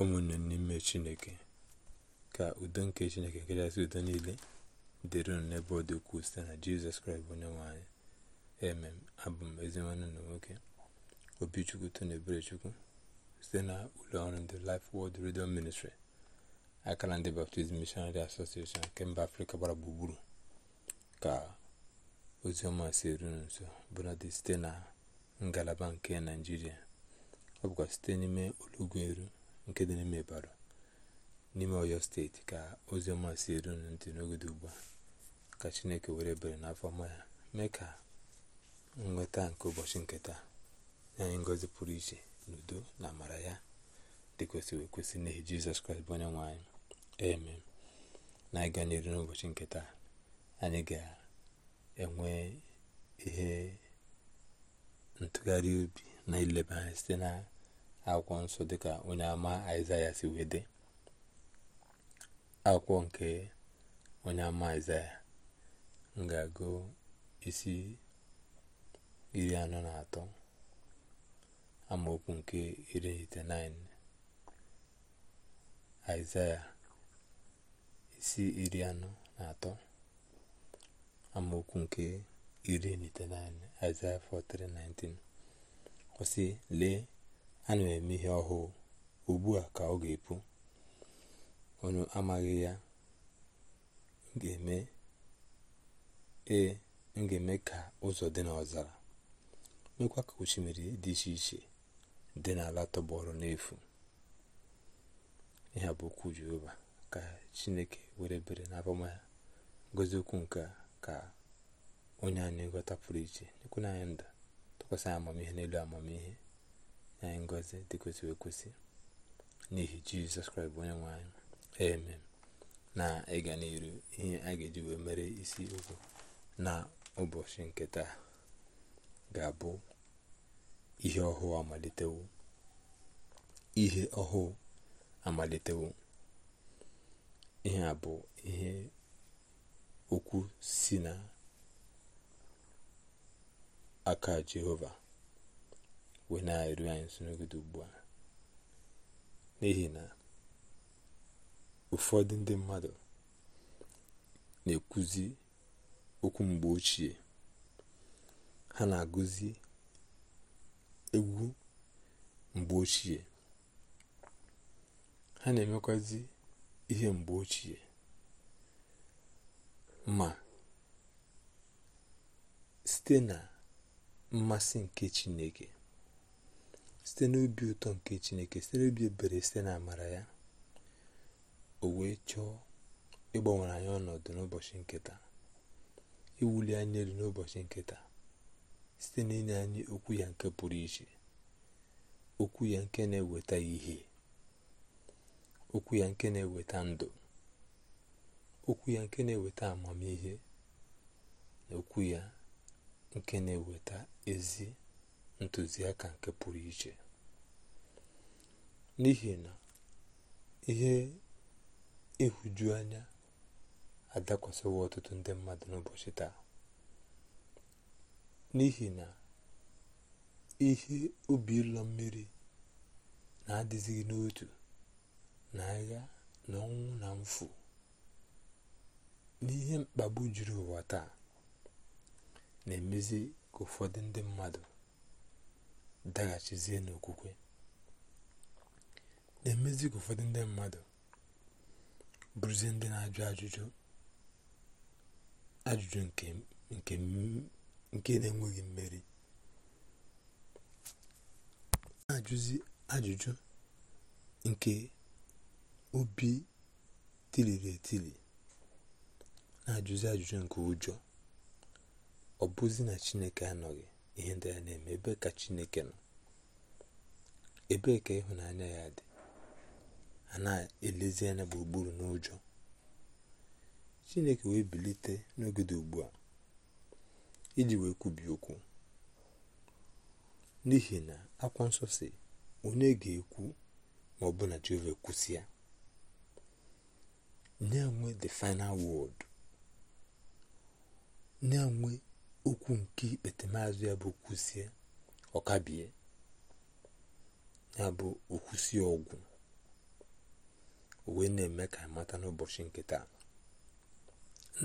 ụmụnne n'ime chineke ka udo nke chineke nke kachasị udo niile dịrị unu n'ebe ọ dị ukwuu site na jizọs kraịst bụ onye nwanyị emem abụ m ezinwanne na nwoke obichukwu tona eberechukwu site na ọrụ ndị Life Word Radio Ministry akara ndị Baptist Missionary Association nke mba afrịka gbara gburugburu ka ọma si eru nso bụladị site na ngalaba nke naijiria ọ bụkwa site n'ime eru nke dị n'ime bara n'ime oyo steeti ka ozi ọma si eru ntị n'oge dị ugbu a ka chineke were ebere n'afọ ọma ya mee ka nnweta nke ụbọchị nketa anyị ngọzi pụrụ iche n'udo na amara ya dị kwesịrị ekwesị n'ihi jizọs kraịst bụ onye nwe anyị eme na anyị ga n'ụbọchị nketa anyị ga-enwe ihe ntụgharị obi na ileba anya site na akwụkwọ nsọ dịka onye ama aịzaya si wee dị akwụkwọ nke onye ama aịzaya ngagụ isi iri anọ na atọ amaokwu nke iri itenaịnị aịzaya isi iri anọ na atọ amaokwu nke iri na naịn aịzaya 43:19 kwụsị lee ha na eme ihe ọhụụ ugbu a ka ọ ga-epu onye amaghị ya ee e, m ga-eme ka ụzọ dị n'ọzara mekwa ka osimiri dị iche iche dị n'ala tọgbọrọ n'efu ihe bụ okwu jehova ka chineke were bere n'abama ya ngozi okwu nke ka onye anyị nghọta pụrụ iche na anyị ndụ tụkwasị amamihe n'elu amamihe nye ngozi dị kwesịrị ekwesị n'ihi jizọs kraịst onye nwe anyị na ịga n'iru ihe a ga-eji wee mere isi okwu na ụbọchị nke taa ga-abụ ihe ọhụụ amalitewo ihe ọhụụ amalitewo ihe a bụ ihe okwu si na aka jehova wee na-eru anyị nso ugbu a n'ihi na ụfọdụ ndị mmadụ na-ekwuzi okwu mgbe ochie ha na-agụzi egwu mgbe ochie ha na-emekwazi ihe mgbe ochie ma site na mmasị nke chineke site n'obi ụtọ nke chineke site n'obi ebere site na amara ya o wee chọọ ịgbanwere anyị ọnọdụ n'ụbọchị nketa iwuli anyị elu n'ụbọchị nketa site n'inye anyị okwu ya nke pụrụ iche okwu ya nke na-eweta ihe okwu ya nke na-eweta ndụ okwu ya nke na-eweta amamihe na okwu ya nke na-eweta ezi ntụziaka nke pụrụ iche n'ihi na ihe ịhụju anya adakwasịwo ọtụtụ ndị mmadụ n'ụbọchị taa n'ihi na ihe obi ụlọ mmiri na-adịzighị n'otu na agha na ọnwụ na mfu n'ihe mkpagbu juru ụwa taa na-emezi ka ụfọdụ ndị mmadụ daghachizie n'okwukwe na-emezi ka ụfọdụ ndị mmadụ bụrụzie ndị na-ajụ ajụjụ ajụjụ nke na-enweghị mmeri na-ajụzi ajụjụ nke obi tiliri etili na-ajụzi ajụjụ nke ụjọ ọ bụzi na chineke anọghị ihe ndị a na-eme ebe ka chineke nọ ebee ka ịhụnanya ya dị a na-elezi anya gburugburu n'ụjọ chineke wee bilite n'oge dị ugbu a iji wee kwubi okwu n'ihi na akwa nsọ si onye ga-ekwu ma ọ na jehova ya nye nwe the final word nye okwu nke ikpete maazụ ya bụ kwụsie ọkabie ya bụ okwusie ọgwụ wee na-eme ka mata n'ụbọchị nke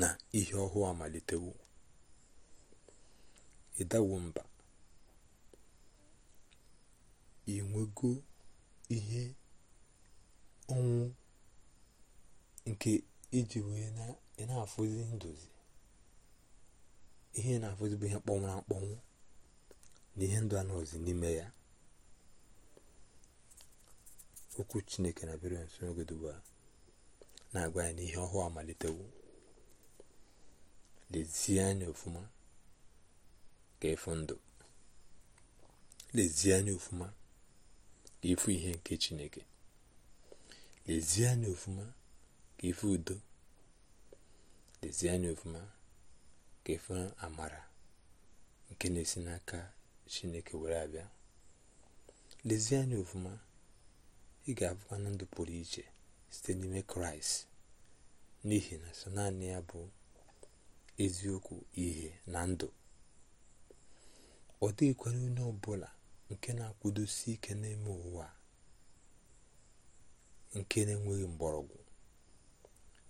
na ihe ọhụụ amalitewo ịdawo mba inwego ihe ọnwụ nke iji wee na-afụzi nduzi ihe na-afụ bụ ihe mkpọnwụrụ akpọnwụ na ihe ndụ anọzi n'ime ya okwu chineke na bịara nso n'oge na-agwa ya n'ihe ọhụụ amalitewo lezie anya ofụma ka ịfụ ndụ lezie anya ofụma ka ịfụ ihe nke chineke lezie anya ofụma ka ịfụ udo lezie anya ofụma ka amara nke na-esi n'aka chineke were abịa lezie anya ofuma ị ga-abụkwa na ndụ pụrụ iche site n'ime kraịst n'ihi na sọ naanị ya bụ eziokwu ihe na ndụ ọ dịghịkwara onye ọbụla nke na-akwụdosi ike n'ime ụwa nke na-enweghị mgbọrọgwụ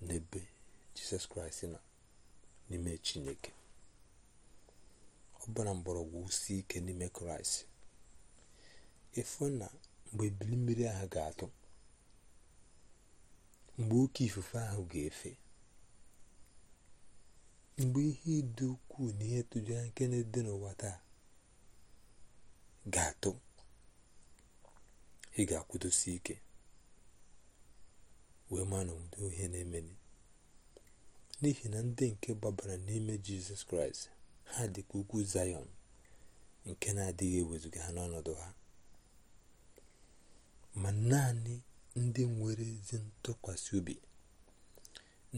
n'ebe jizọs kraịst nọ n'ime chineke ọ mgbọrọgwụ si ike n'ime kraịst efu na mgbe ebili mmiri ahụ ga-atụ mgbe oke ifufe ahụ ga-efe mgbe ihe dị ukwuu na ihe tụjara nke na-ede n'ụwa taa ga-atụ ị ga-akwụdosi ike wee ma na ohe na emeni n'ihi na ndị nke gbabara n'ime jizọs kraịst ha dị ka ugwu zayọn nke na-adịghị ewezuga ha n'ọnọdụ ha ma naanị ndị nwere ezi ntụkwasị obi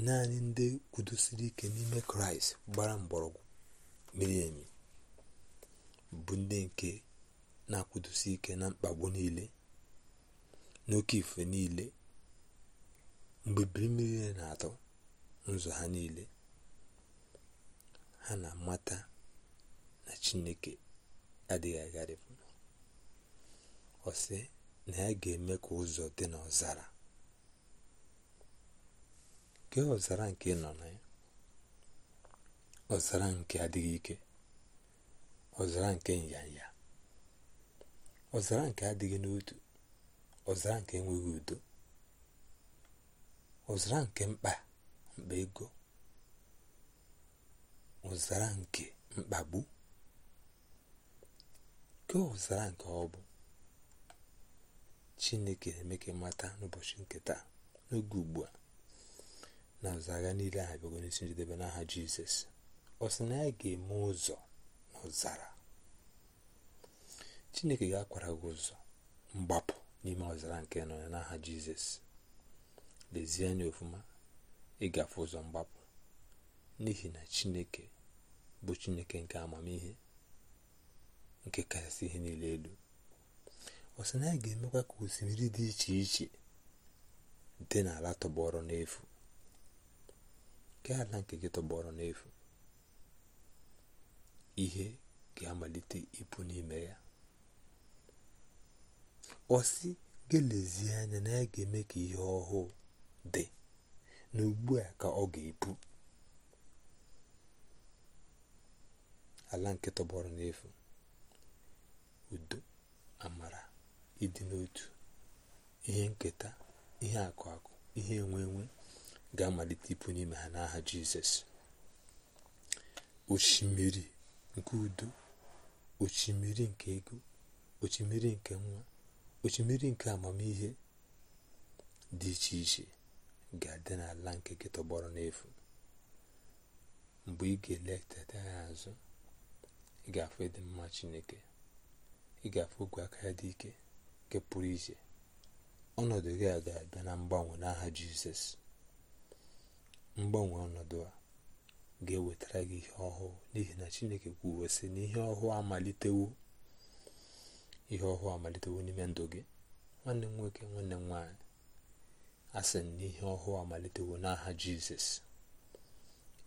naanị ndị kwudosiri ike n'ime kraịst gbara mgbọrọgwụ miri bụ ndị nke na-akwụdosi ike na mkpagbu niile n'oke ife niile mgbe biri na-atọ n'ụzọ ha niile ha na-amata na chineke adịghị agharịpụ ọ sị na ya ga-eme ka ụzọ dị n'ọzara nke ọzara nke nọ na ya ọzara nke adịghị ike ọzara nke nyanya ọzara nke adịghị n'otu ọzara nke enweghị udo ọzara nke mkpa mkpa ego ụzara nke mkpagbu ke ụzara nke ọ bụ chineke na-eme mata n'ụbọchị nke taa n'oge ugbu a na ụzara niile a bịago n'isi njedebe n'aha jizọs ọ sị na ya ga-eme ụzọ na ụzara chineke ga-akwara gị ụzọ mgbapụ n'ime ọzara nke nọ n'aha jizọs lezie anya ofụma ịgafe ụzọ mgbapụ n'ihi na chineke bụ chineke nke amamihe nke kachasị ihe niile elu ọ na ya ga-emekwa ka osimiri dị iche iche dị n'ala tọgbọrọ n'efu nke ala nke gị tọgbọrọ n'efu ihe ga-amalite ịpụ n'ime ya ọsị sị gelezie anya na ya ga-eme ka ihe ọhụụ dị na ugbu a ka ọ ga-epu ala nke tọgbọrọ n'efu udo amara ịdị n'otu ihe nketa ihe akụ akụ ihe enwe enwe ga-amalite ịpụ n'ime ha n'aha jizọs osimiri nke udo osimiri nke ego osimiri nke nwa osimiri nke amamihe dị iche iche ga-adị n'ala nke gị tọgbọrọ n'efu mgbe ị ga-eletata ya azụ ị ga-afụ ịdị mma chineke ị ga-afụ ogwe aka ya dị ike nke pụrụ iche ọnọdụ gị a ga-abịa na mgbanwe n'aha jizọs mgbanwe ọnọdụ a ga-ewetara gị ihe ọhụụ n'ihi na chineke kwuo sị na ihe ọhụụ amalitewo ihe ọhụụ amalitewo n'ime ndụ gị nwanne m nwoke nwanne m nwaanyị asị na ihe ọhụụ amalitewo n'aha jizọs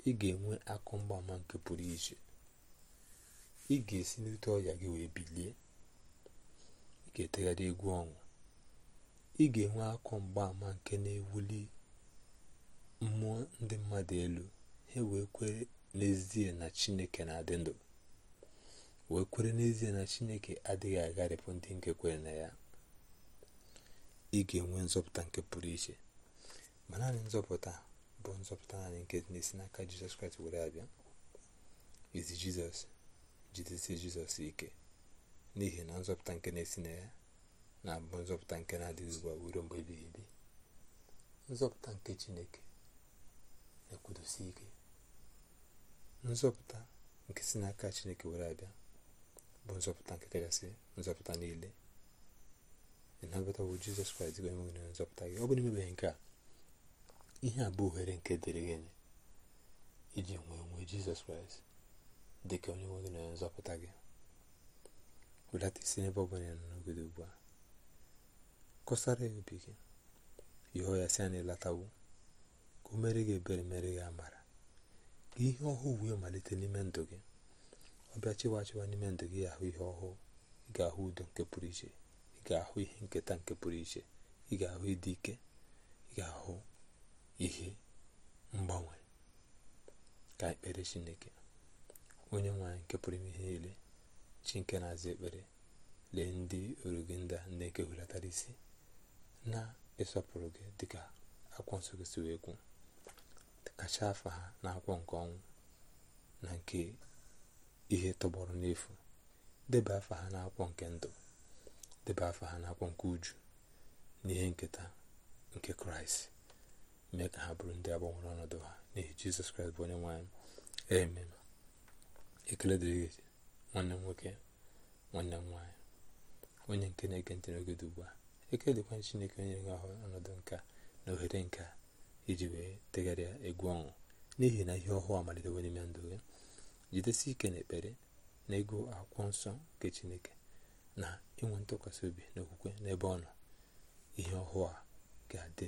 ị ga-enwe akụ mgbaama nke pụrụ iche ị ga-esi n'ute ọrịa gị wee bilie ị ga-etegharị egwu ọṅụ ị ga-enwe akụ mgbaama nke na-ewuli mmụọ ndị mmadụ elu ha wee kwere n'ezie na chineke na-adị ndụ wee kwere n'ezie na chineke adịghị agharịpụ ndị nke kwere na ya ị ga-enwe nzọpụta nke pụrụ iche ma naanị nzọpụta bụ nzọpụta naanị nke na-esi n'aka jizọs kraịst were abịa jizọs jidesie jizọs ike n'ihi na nzọpụta nke na-esi na ya na-abụ nzọpụta nke na-adịghị ugbu a ruo mgbe ebighị ebi nzọpụta nke chineke na-ekwudosi ike nzọpụta nke si n'aka chineke were abịa bụ nzọpụta nke kachasị nzọpụta niile na nnabata bụ jizọs kraịst bụ enweghị onye nzọpụta gị ọ bụrụ imebeghị nke a ihe a bụ ohere nke dịrị gị iji nwee nwee jizọs kraịst dị ka onye nwe na onye nzọpụta gị wedata isi n'ebe ọ bụla ya nọ ugbu a kọsara ya obi gị yọọ ya si ya na ịlatawo ka o mere gị ebere mere gị amara ka ihe ọhụụ wee malite n'ime ndụ gị ọ bịa chịwa chịwa n'ime ndụ gị ahụ ihe ọhụụ ị ga-ahụ udo nke pụrụ iche ị ga-ahụ ihe nketa nke pụrụ iche ị ga-ahụ ịdị ike ị ga-ahụ ihe mgbanwe ka ekpere chineke onye nwanyị nke pụrụ ime ihe niile chi nke na-aza ekpere lee ndị orugị ndị a na-eke isi na-ịsọpụrụ gị dịka akwụkwọ nsọ gị si wee kwu kacha afa ha na akwụkwọ nke ọnwụ na nke ihe tọgbọrọ n'efu deba afa ha na akwụkwọ nke ndụ debe afọ ha n'akwụkwọ nke uju n'ihe nketa nke kraịst mee ka ha bụrụ ndị agbanwere ọnọdụ ha n'ihi jizọs kraịst bụ onye nwanyị amen ekele dịrị gị nwanne m nwoke nwanne nwaanyị onye nke na-ege ntị n'oge dị ugbu a ekele dịkwa chineke onye nwe ahụ ọnọdụ nka na ohere nka iji wee degharịa egwu ọnwụ n'ihi na ihe ọhụụ amalitewo n'ime ndụ gị jidesi ike ekpere na ego akwụkwọ nsọ nke chineke na inwe ntụkwasị obi n'okwukwe n'ebe ọ nọ ihe ọhụụ a ga-adị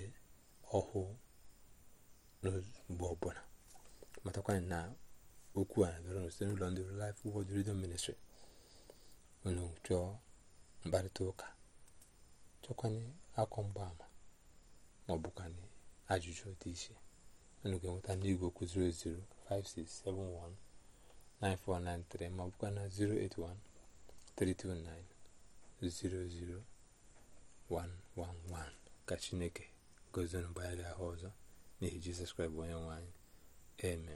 ọhụụ n'mgbe ọbụla matakwanyị na okwu a bịara site n'ụlọ ndị Life Word Radio Ministry unu chọọ mkparịta ụka chọkwanye akọ mgbaama ma ọ bụkwanye ajụjụ dị iche unu ga-enweta n'igwe okwu 9493 ma ọ bụkwa na 0813290 00111 ka chineke gozinu mgbe ahụ ọzọ n'ihi jizọs kraịst onye nwanyị anyị